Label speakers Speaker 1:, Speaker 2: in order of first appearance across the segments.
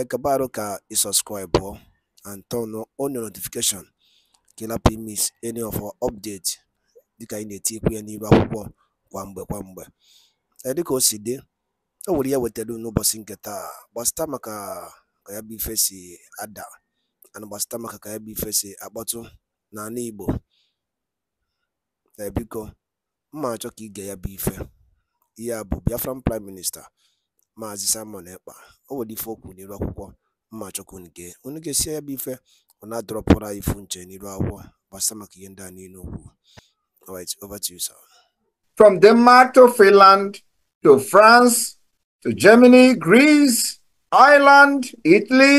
Speaker 1: acabar ka i subscribe and turn on your notification ka ị any of our update dịka anyị na-etikwu ya n'iru akwụkwọ kwa mgbe kwa mgbe dịka o si dị o nwere ya e wetara n'ụbọchị nke taa gbasịta maka ka ya bụ ife si ada ana gbasịta maka ka ya bụ ife si akpọtụ n'ala igbo ebiko mma achọ ka ige ya bụ ife ihe a bụ biafran prime minista Maazị Simon Ekpa o nwere ife okwu n'iru akwụkwọ mmachukwu nke onye ga-esi ya bụ ife unu adọrọpụrụ anyị ifu nche n'iru akwụkwọ gbasa maka ihe ndị a niile okwu from Denmark to Finland to France to Germany Greece Ireland
Speaker 2: Italy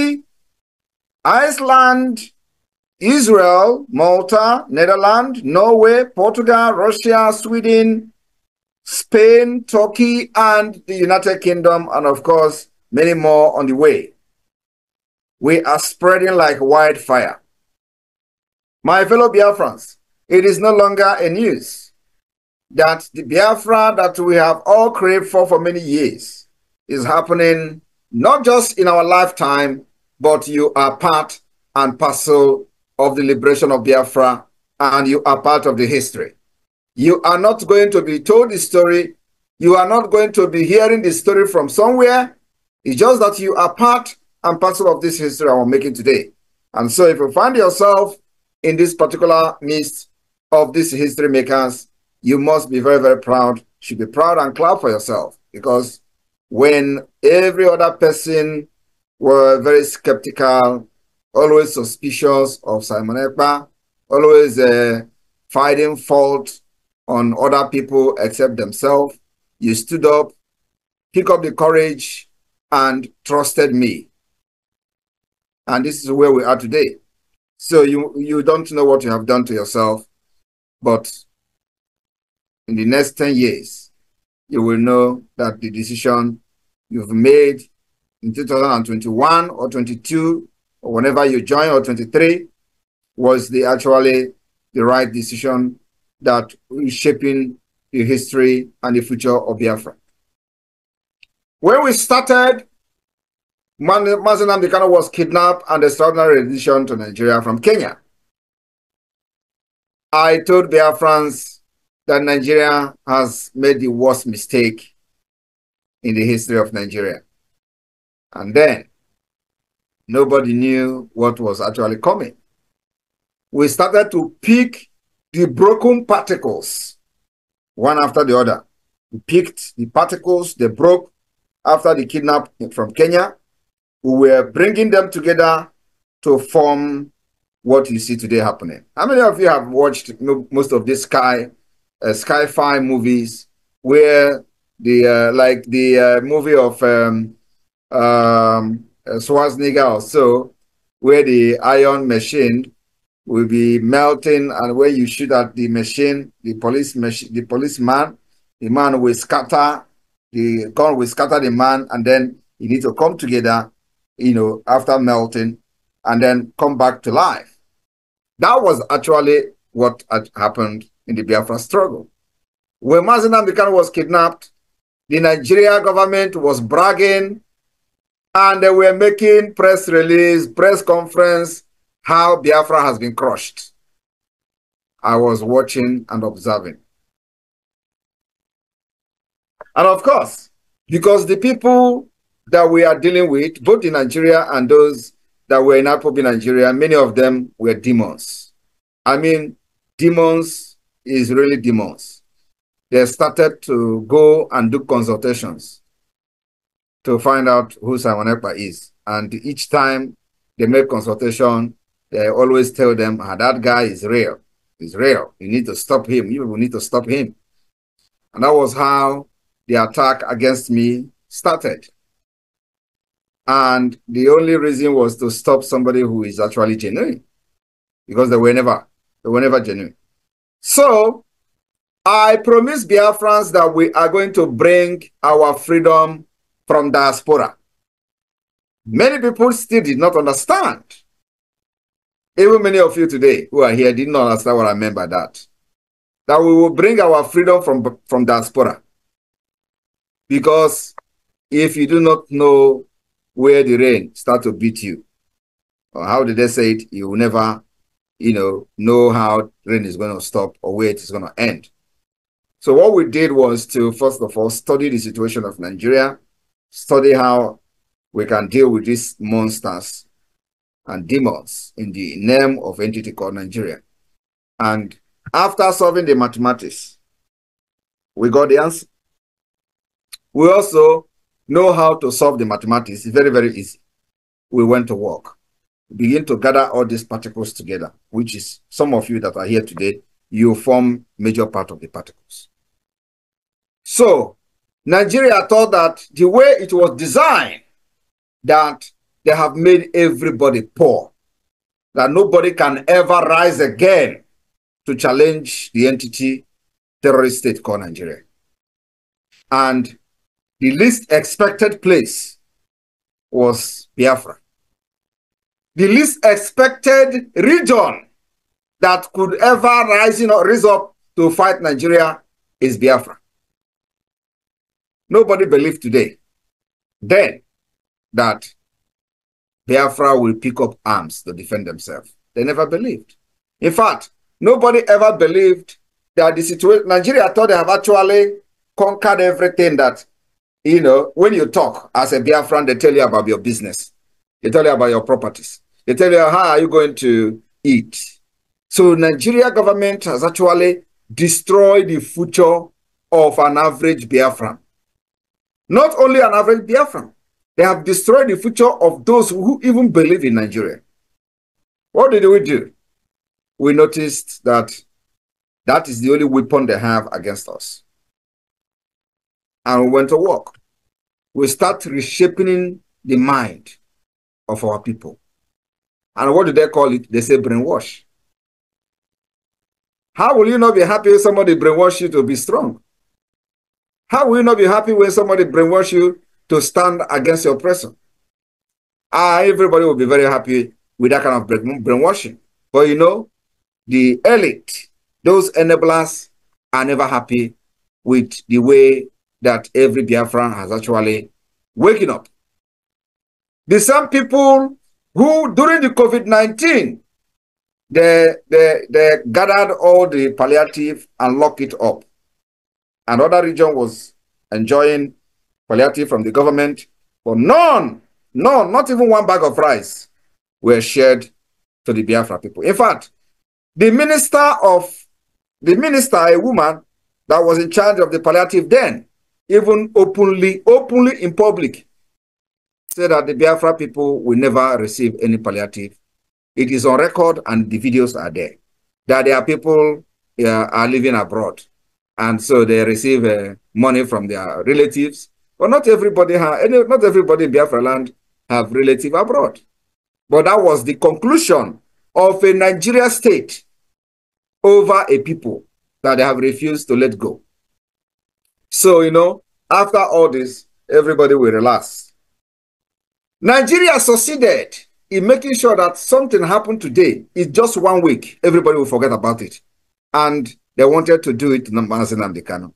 Speaker 2: Iceland Israel, Malta, Netherlands, Norway, Portugal, Russia, Sweden, Spain, Turkey, and the United Kingdom, and of course, many more on the way. We are spreading like wildfire. My fellow Biafrans, it is no longer a news that the Biafra that we have all craved for for many years is happening not just in our lifetime, but you are part and parcel of the liberation of Biafra and you are part of the history. You are not going to be told the story. You are not going to be hearing the story from somewhere. It's just that you are part and parcel of this history I'm making today. And so if you find yourself in this particular midst of these history makers, you must be very, very proud. You should be proud and clap for yourself because when every other person were very skeptical, always suspicious of Simon Ekpa, always uh, finding fault on other people except themselves. You stood up, pick up the courage, and trusted me. And this is where we are today. So you you don't know what you have done to yourself, but in the next 10 years, you will know that the decision you've made in 2021 or 22 or whenever you join or 23 was the actually the right decision that is shaping the history and the future of Biafra. When we started, Mazen Amdekano was kidnapped and extraordinary rendition to Nigeria from Kenya. I told Biafrans that Nigeria has made the worst mistake in the history of Nigeria. And then nobody knew what was actually coming. We started to pick the broken particles, one after the other. We picked the particles they broke after the kidnap from Kenya. We were bringing them together to form what you see today happening. How many of you have watched most of these sky, uh, fi movies where the uh, like the uh, movie of um, um, uh, Schwarzenegger or so, where the iron machine will be melting, and when you shoot at the machine, the police the policeman, the man will scatter, the gun will scatter the man, and then you need to come together, you know, after melting, and then come back to life. That was actually what had happened in the Biafra struggle. When Mazen Bikan was kidnapped, the Nigeria government was bragging, and they were making press release, press conference, how Biafra has been crushed. I was watching and observing. And of course, because the people that we are dealing with, both in Nigeria and those that were in Apobi, Nigeria, many of them were demons. I mean, demons is really demons. They started to go and do consultations to find out who Simon Ekpa is. And each time they made consultation, I always tell them, ah, that guy is real. He's real. You need to stop him. You will need to stop him. And that was how the attack against me started. And the only reason was to stop somebody who is actually genuine. Because they were never, they were never genuine. So I promised Biafrans that we are going to bring our freedom from diaspora. Many people still did not understand even many of you today who are here did not understand what I meant by that. That we will bring our freedom from, from diaspora. Because if you do not know where the rain start to beat you, or how did they say it, you will never, you know, know how rain is going to stop or where it is going to end. So what we did was to, first of all, study the situation of Nigeria, study how we can deal with these monsters and demons in the name of entity called Nigeria. And after solving the mathematics, we got the answer. We also know how to solve the mathematics. It's very, very easy. We went to work. We begin to gather all these particles together, which is some of you that are here today, you form major part of the particles. So Nigeria thought that the way it was designed, that they have made everybody poor. That nobody can ever rise again to challenge the entity terrorist state called Nigeria. And the least expected place was Biafra. The least expected region that could ever rise, you know, rise up to fight Nigeria is Biafra. Nobody believed today, then, that Biafra will pick up arms to defend themselves. They never believed. In fact, nobody ever believed that the situation, Nigeria thought they have actually conquered everything that, you know, when you talk as a Biafran, they tell you about your business. They tell you about your properties. They tell you, how are you going to eat? So Nigeria government has actually destroyed the future of an average Biafran. Not only an average Biafran, they have destroyed the future of those who even believe in Nigeria. What did we do? We noticed that that is the only weapon they have against us. And we went to work. We start reshaping the mind of our people. And what do they call it? They say brainwash. How will you not be happy if somebody brainwash you to be strong? How will you not be happy when somebody brainwash you to stand against the oppressor. Ah, everybody will be very happy with that kind of brainwashing. But you know, the elite, those enablers, are never happy with the way that every Biafran has actually waking up. The same people who, during the COVID-19, they, they, they gathered all the palliative and locked it up. Another region was enjoying palliative from the government, but none, none, not even one bag of rice were shared to the Biafra people. In fact, the minister of the minister, a woman that was in charge of the palliative then, even openly, openly in public, said that the Biafra people will never receive any palliative. It is on record and the videos are there. That there are people uh, are living abroad and so they receive uh, money from their relatives but not everybody any, not everybody in Biafra land have relative abroad. But that was the conclusion of a Nigeria state over a people that they have refused to let go. So, you know, after all this, everybody will relax. Nigeria succeeded in making sure that something happened today. It's just one week. Everybody will forget about it. And they wanted to do it to the Amdekano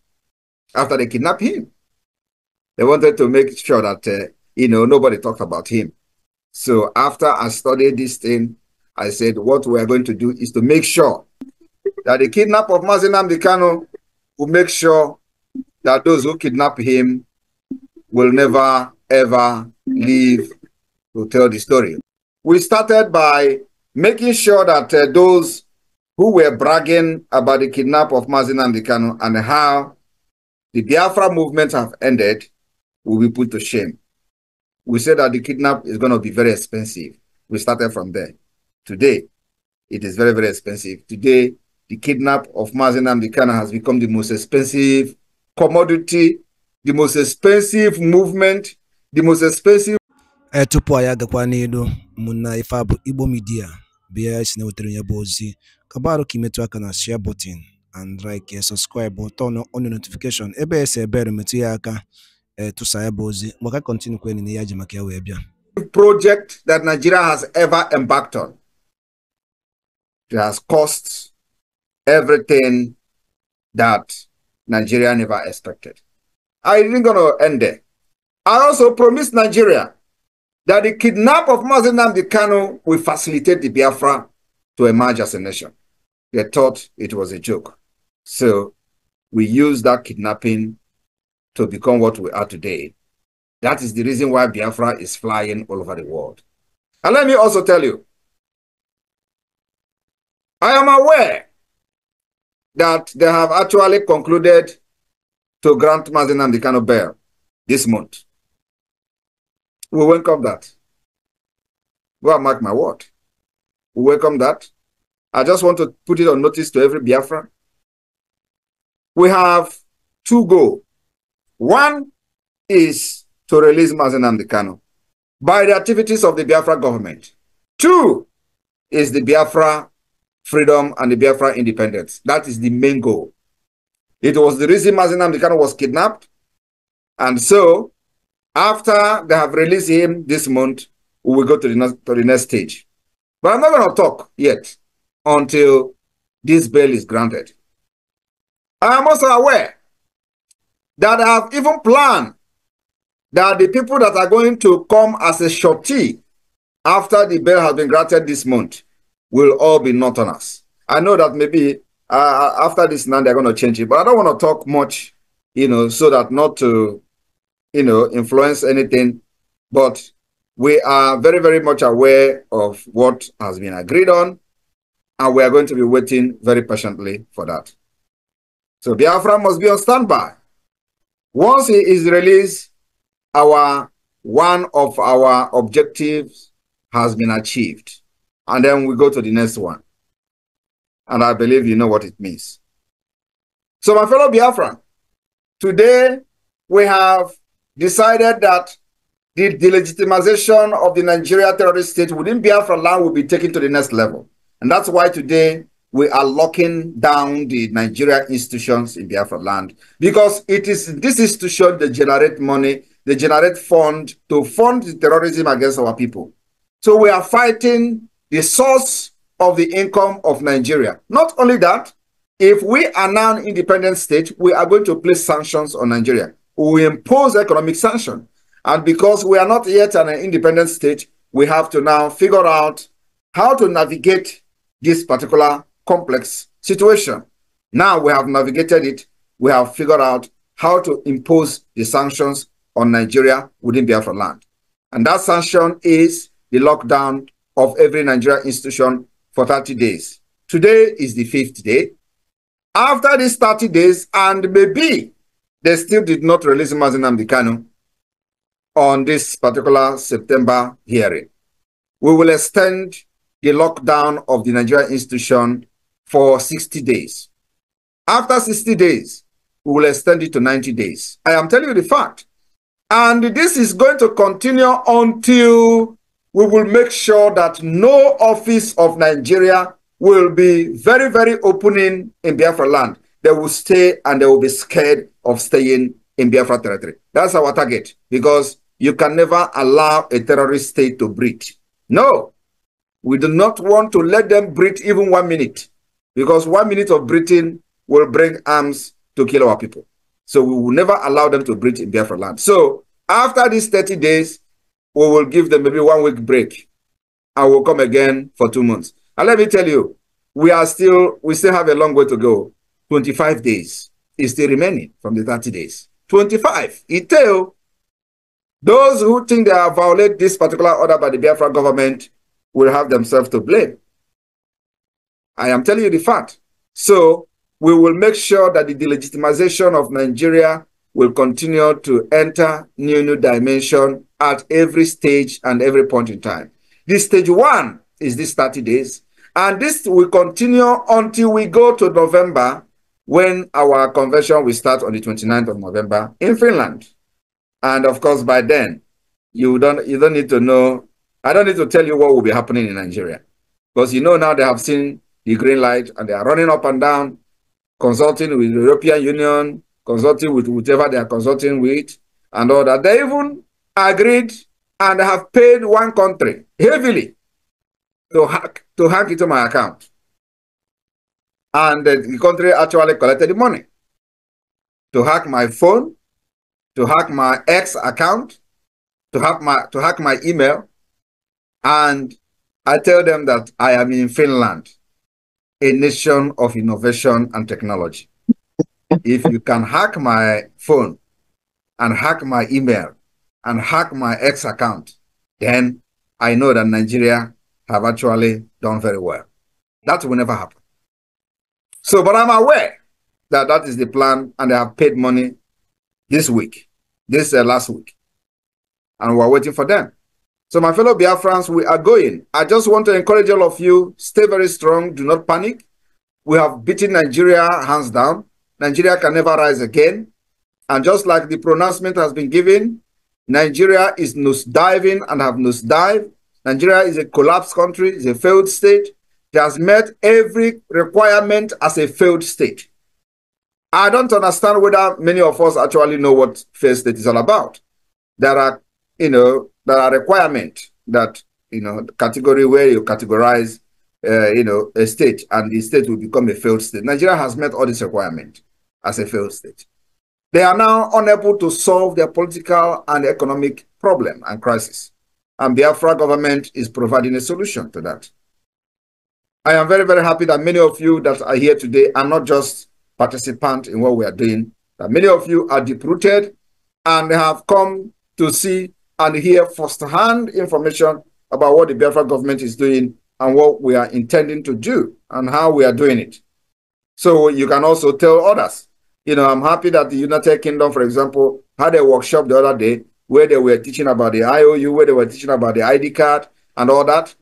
Speaker 2: after they kidnapped him. They wanted to make sure that, uh, you know, nobody talked about him. So after I studied this thing, I said, what we are going to do is to make sure that the kidnap of Mazinam Dikano will make sure that those who kidnap him will never, ever leave to tell the story. We started by making sure that uh, those who were bragging about the kidnap of Mazinam Dikano and how the Biafra movement have ended, will be put to shame. We said that the kidnap is going to be very expensive. We started from there. Today, it is very, very expensive. Today, the kidnap of the Dikana has become the most expensive commodity,
Speaker 1: the most expensive movement, the most expensive. tupu kabarụ na share button and like subscribe turn on notification ebe Eh, tụsa ya bụ ozi
Speaker 2: project that Nigeria has ever embarked on.
Speaker 1: It has cost
Speaker 2: everything that Nigeria never expected. I didn't going to end there. I also promised Nigeria that the kidnap of Mazin Namdi will facilitate the Biafra to emerge as a nation. They thought it was a joke. So we used that kidnapping to become what we are today. That is the reason why Biafra is flying all over the world. And let me also tell you, I am aware that they have actually concluded to grant Mazen and the of bear this month. We welcome that. Go and mark my word. We welcome that. I just want to put it on notice to every Biafra. We have two goals one is to release Mazen Kano by the activities of the Biafra government. Two is the Biafra freedom and the Biafra independence. That is the main goal. It was the reason Mazen Amdekano was kidnapped. And so, after they have released him this month, we will go to the, next, to the next stage. But I'm not going to talk yet until this bail is granted. I am also aware that have even planned that the people that are going to come as a shorty after the bail has been granted this month will all be not on us. I know that maybe uh, uh after this now they're going to change it, but I don't want to talk much, you know, so that not to, you know, influence anything. But we are very, very much aware of what has been agreed on, and we are going to be waiting very patiently for that. So Biafra must be on standby. Once he is released, our one of our objectives has been achieved. And then we go to the next one. And I believe you know what it means. So, my fellow Biafran, today we have decided that the delegitimization of the Nigeria terrorist state within Biafra land will be taken to the next level. And that's why today we are locking down the Nigeria institutions in Biafra land because it is this institution that generate money, they generate fund to fund the terrorism against our people. So we are fighting the source of the income of Nigeria. Not only that, if we are now an independent state, we are going to place sanctions on Nigeria. We impose economic sanction. And because we are not yet an independent state, we have to now figure out how to navigate this particular complex situation. Now we have navigated it. We have figured out how to impose the sanctions on Nigeria within Biafra land. And that sanction is the lockdown of every Nigerian institution for 30 days. Today is the fifth day. After these 30 days, and maybe they still did not release Mazinam Dikano on this particular September hearing. We will extend the lockdown of the Nigerian institution for 60 days. After 60 days, we will extend it to 90 days. I am telling you the fact. And this is going to continue until we will make sure that no office of Nigeria will be very, very opening in Biafra land. They will stay and they will be scared of staying in Biafra territory. That's our target because you can never allow a terrorist state to breathe. No, we do not want to let them breathe even one minute because one minute of Britain will bring arms to kill our people. So we will never allow them to breach in Biafra land. So after these 30 days, we will give them maybe one week break and we'll come again for two months. And let me tell you, we are still, we still have a long way to go. 25 days is still remaining from the 30 days. 25. It tell those who think they have violated this particular order by the Biafra government will have themselves to blame. I am telling you the fact. So we will make sure that the delegitimization of Nigeria will continue to enter new new dimension at every stage and every point in time. This stage one is this 30 days. And this will continue until we go to November when our convention will start on the 29th of November in Finland. And of course, by then, you don't you don't need to know. I don't need to tell you what will be happening in Nigeria. Because you know now they have seen the green light and they are running up and down, consulting with the European Union, consulting with whatever they are consulting with, and all that. They even agreed and have paid one country heavily to hack to hack into my account. And the country actually collected the money to hack my phone, to hack my ex account, to hack my to hack my email. And I tell them that I am in Finland a nation of innovation and technology. if you can hack my phone and hack my email and hack my X account, then I know that Nigeria have actually done very well. That will never happen. So, but I'm aware that that is the plan, and they have paid money this week, this uh, last week, and we're waiting for them. So, my fellow Biafrans, we are going. I just want to encourage all of you stay very strong, do not panic. We have beaten Nigeria hands down. Nigeria can never rise again. And just like the pronouncement has been given, Nigeria is nose diving and have nose dive. Nigeria is a collapsed country, is a failed state. It has met every requirement as a failed state. I don't understand whether many of us actually know what failed state is all about. There are, you know, there are requirements that you know category where you categorize uh, you know a state and the state will become a failed state nigeria has met all these requirements as a failed state they are now unable to solve their political and economic problem and crisis and biafra government is providing a solution to that i am very very happy that many of you that are here today are not just participants in what we are doing that many of you are deep-rooted and have come to see and hear firsthand information about what the Biafra government is doing and what we are intending to do and how we are doing it. So you can also tell others. You know, I'm happy that the United Kingdom, for example, had a workshop the other day where they were teaching about the IOU, where they were teaching about the ID card and all that.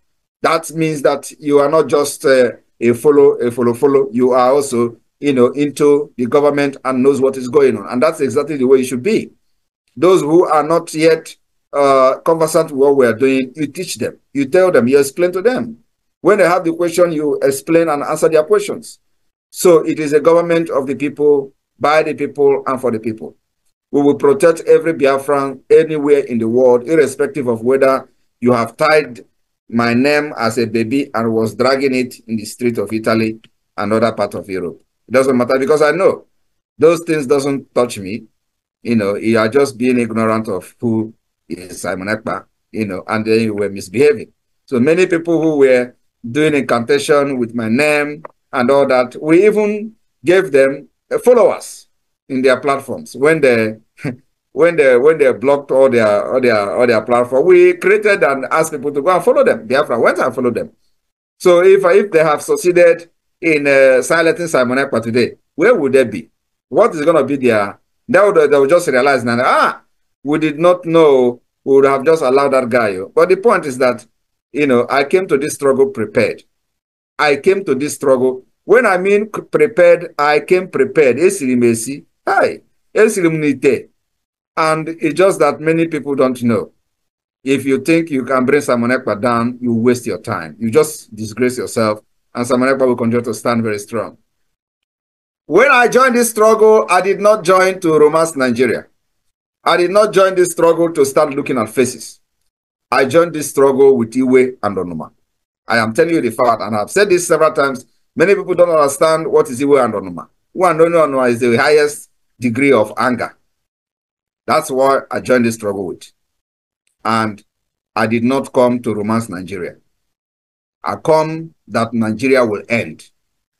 Speaker 2: That means that you are not just uh, a follow, a follow, follow. You are also, you know, into the government and knows what is going on. And that's exactly the way it should be. Those who are not yet uh, conversant with what we are doing, you teach them, you tell them, you explain to them. When they have the question, you explain and answer their questions. So it is a government of the people, by the people, and for the people. We will protect every Biafran anywhere in the world, irrespective of whether you have tied my name as a baby and was dragging it in the street of Italy and other part of Europe. It doesn't matter because I know those things doesn't touch me. You know, you are just being ignorant of who Simon Akpa, you know, and then you were misbehaving. So many people who were doing incantation with my name and all that, we even gave them uh, followers in their platforms when they when they when they blocked all their all their all their platform. We created and asked people to go and follow them. Biafra went and followed them. So if if they have succeeded in uh, silencing Simon Ekpa today, where would they be? What is going to be their? They would, they would just realize now, ah, we did not know, we would have just allowed that guy. But the point is that, you know, I came to this struggle prepared. I came to this struggle. When I mean prepared, I came prepared. Hi. And it's just that many people don't know. If you think you can bring Simon down, you waste your time. You just disgrace yourself, and Simon will continue to stand very strong. When I joined this struggle, I did not join to romance Nigeria. I did not join this struggle to start looking at faces. I joined this struggle with Iwe and Onuma. I am telling you the fact, and I've said this several times. Many people don't understand what is Iwe and Onuma. Iwe and Onuma is the highest degree of anger. That's why I joined this struggle with. And I did not come to romance Nigeria. I come that Nigeria will end.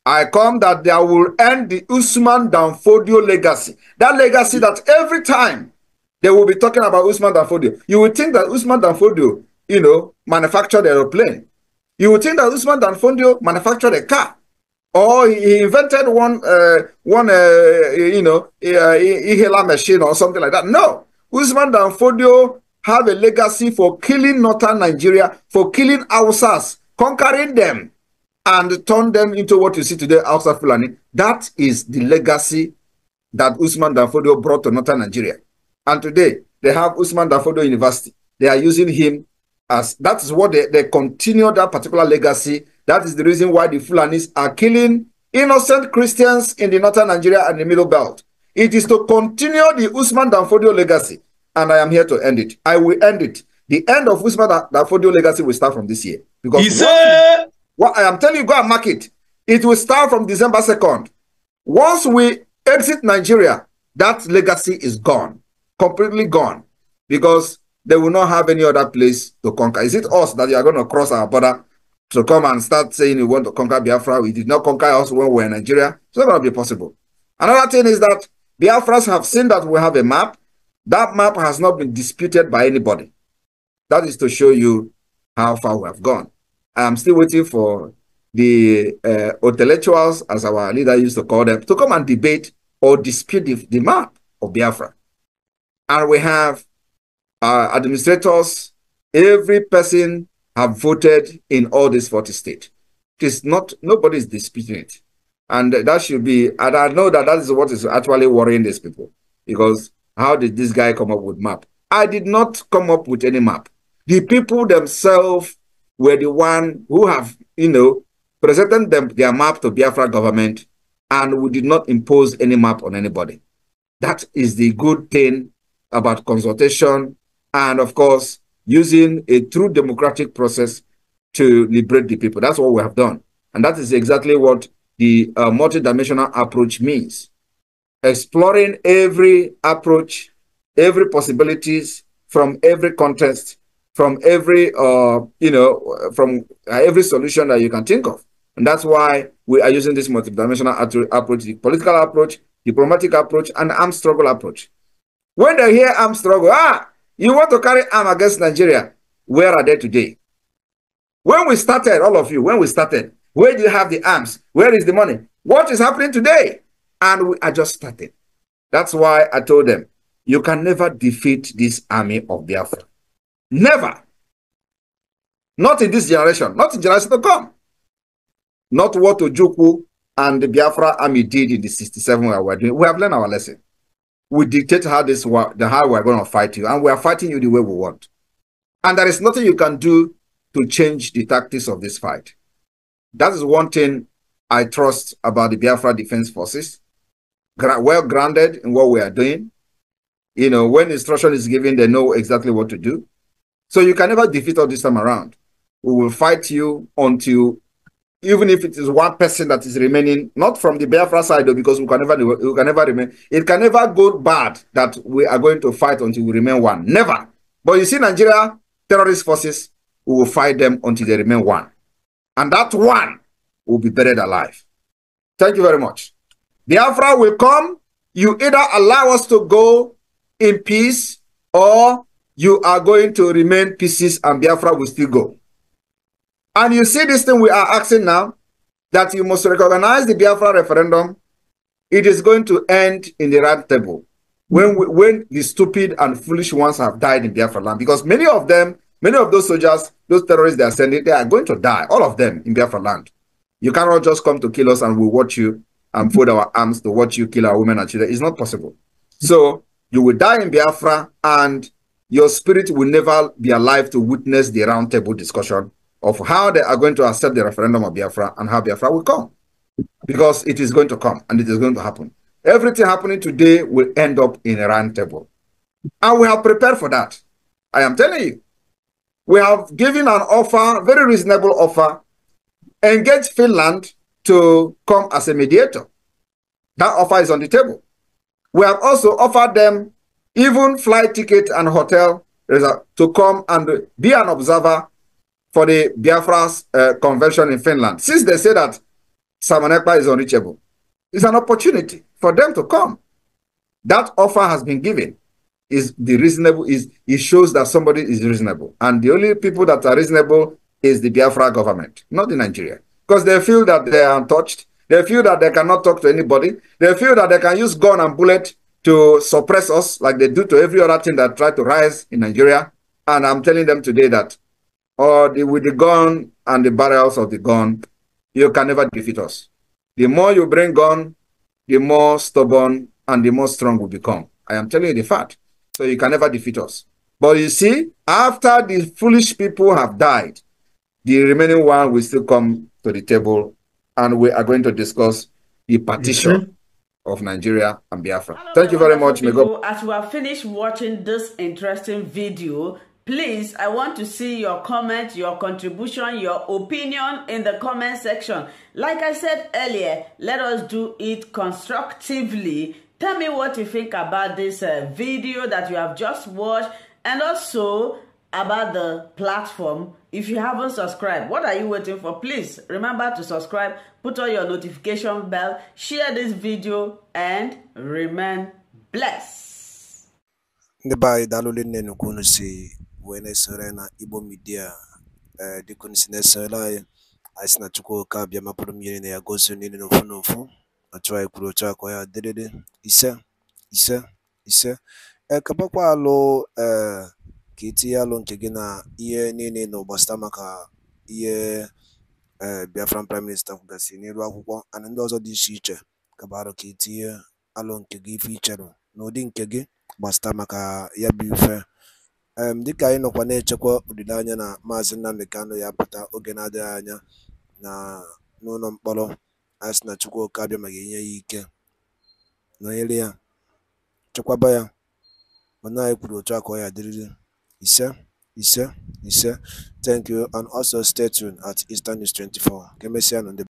Speaker 2: I come that there will end the Usman Danfodio legacy. That legacy that every time they will be talking about Usman Danfodio. You would think that Usman Danfodio, you know, manufactured aeroplane. You would think that Usman Danfodio manufactured a car. Or he invented one, uh, one, uh, you know, inhaler machine or something like that. No, Usman Danfodio have a legacy for killing northern Nigeria, for killing Hausas, conquering them, and turn them into what you see today, Hausa Fulani. That is the legacy that Usman Danfodio brought to northern Nigeria. And today they have Usman Dafodo University. They are using him as that is what they, they continue that particular legacy. That is the reason why the Fulanis are killing innocent Christians in the northern Nigeria and the middle belt. It is to continue the Usman Danfodio legacy, and I am here to end it. I will end it. The end of Usman Danfodio legacy will start from this year. Because he said, what I am telling you, go and mark it. It will start from December 2nd. Once we exit Nigeria, that legacy is gone completely gone because they will not have any other place to conquer. Is it us that you are going to cross our border to come and start saying you want to conquer Biafra? We did not conquer us when we were in Nigeria. It's not going to be possible. Another thing is that Biafras have seen that we have a map. That map has not been disputed by anybody. That is to show you how far we have gone. I am still waiting for the uh, intellectuals, as our leader used to call them, to come and debate or dispute the, the map of Biafra and we have uh, administrators. Every person have voted in all these 40 states. It is not, nobody is disputing it. And that should be, and I know that that is what is actually worrying these people because how did this guy come up with map? I did not come up with any map. The people themselves were the one who have, you know, presented them their map to Biafra government and we did not impose any map on anybody. That is the good thing about consultation, and of course, using a true democratic process to liberate the people. That's what we have done. And that is exactly what the uh, multidimensional approach means. Exploring every approach, every possibilities from every context, from every, uh, you know, from uh, every solution that you can think of. And that's why we are using this multidimensional approach, the political approach, diplomatic approach, and armed struggle approach. When they hear arm struggle, ah, you want to carry arm against Nigeria. Where are they today? When we started, all of you, when we started, where do you have the arms? Where is the money? What is happening today? And we are just starting. That's why I told them, you can never defeat this army of Biafra. Never. Not in this generation, not in generation to come. Not what Ojukwu and the Biafra army did in the 67 we are doing. We have learned our lesson we dictate how this the how we're going to fight you, and we are fighting you the way we want. And there is nothing you can do to change the tactics of this fight. That is one thing I trust about the Biafra Defense Forces. Well grounded in what we are doing. You know, when instruction is given, they know exactly what to do. So you can never defeat us this time around. We will fight you until even if it is one person that is remaining, not from the Biafra side, though, because we can never, we can never remain. It can never go bad that we are going to fight until we remain one. Never. But you see, Nigeria terrorist forces, we will fight them until they remain one, and that one will be buried alive. Thank you very much. Biafra will come. You either allow us to go in peace, or you are going to remain pieces, and Biafra will still go. And you see this thing we are asking now, that you must recognize the Biafra referendum. It is going to end in the round table when we, when the stupid and foolish ones have died in Biafra land, because many of them, many of those soldiers, those terrorists they are sending, they are going to die, all of them in Biafra land. You cannot just come to kill us and we watch you and fold our arms to watch you kill our women and children. It's not possible. So you will die in Biafra and your spirit will never be alive to witness the round table discussion of how they are going to accept the referendum of Biafra and how Biafra will come. Because it is going to come and it is going to happen. Everything happening today will end up in a round table. And we have prepared for that. I am telling you. We have given an offer, very reasonable offer, engage Finland to come as a mediator. That offer is on the table. We have also offered them even flight ticket and hotel to come and be an observer for the Biafra's uh, convention in Finland, since they say that Samanepa is unreachable, it's an opportunity for them to come. That offer has been given. Is the reasonable is it shows that somebody is reasonable, and the only people that are reasonable is the Biafra government, not the Nigeria, because they feel that they are untouched. They feel that they cannot talk to anybody. They feel that they can use gun and bullet to suppress us like they do to every other thing that try to rise in Nigeria. And I'm telling them today that or the, with the gun and the barrels of the gun, you can never defeat us. The more you bring gun, the more stubborn and the more strong we become. I am telling you the fact. So you can never defeat us. But you see, after the foolish people have died, the remaining one will still come to the table and we are going to discuss the partition mm -hmm. of Nigeria and Biafra. Hello, Thank you very much. People, as we are finished watching this interesting video, Please, I want to see your comment, your contribution, your opinion in the comment section. Like I said earlier, let us do it constructively. Tell me what you think about this uh, video that you have just watched and also about the platform. If you haven't subscribed, what are you waiting for? Please remember to subscribe, put on your notification bell, share this video, and remain blessed.
Speaker 1: Bye. bụ onye na-esore na Igbo Media ee eh, dịka unu si na-esore anyị anyị si na Chukwu oke abịa na ya gosi niile n'ofu n'ofu otu anyị kwuru akọ ya dịrịrị ise ise ise ekebakwa eh, alụ ee eh, ka itinye alụ nke gị na ihe niile na ụgbasịta maka ihe ee Biafran prime minista kwugasị akwụkwọ ana ndị ọzọ dị iche iche alụ ka itinye alụ nke gị ife icherụ n'ụdị nke gị gbasịta maka ya bụ ife um dịka anyị nọkwa na-echekwa olileanya na maazị Nnamdi Kanu ya pụta oge na-adịghị anya n'ụlọ mkpọrọ anyị na Chukwuka abịa ma ga ya ike nọnyere ya chekwaba ya mana anyị kwuru otu a ka ọ ya dịrịrị ise ise ise thank you and also stay tuned at Eastern News 24 ka emesịa nụ ndị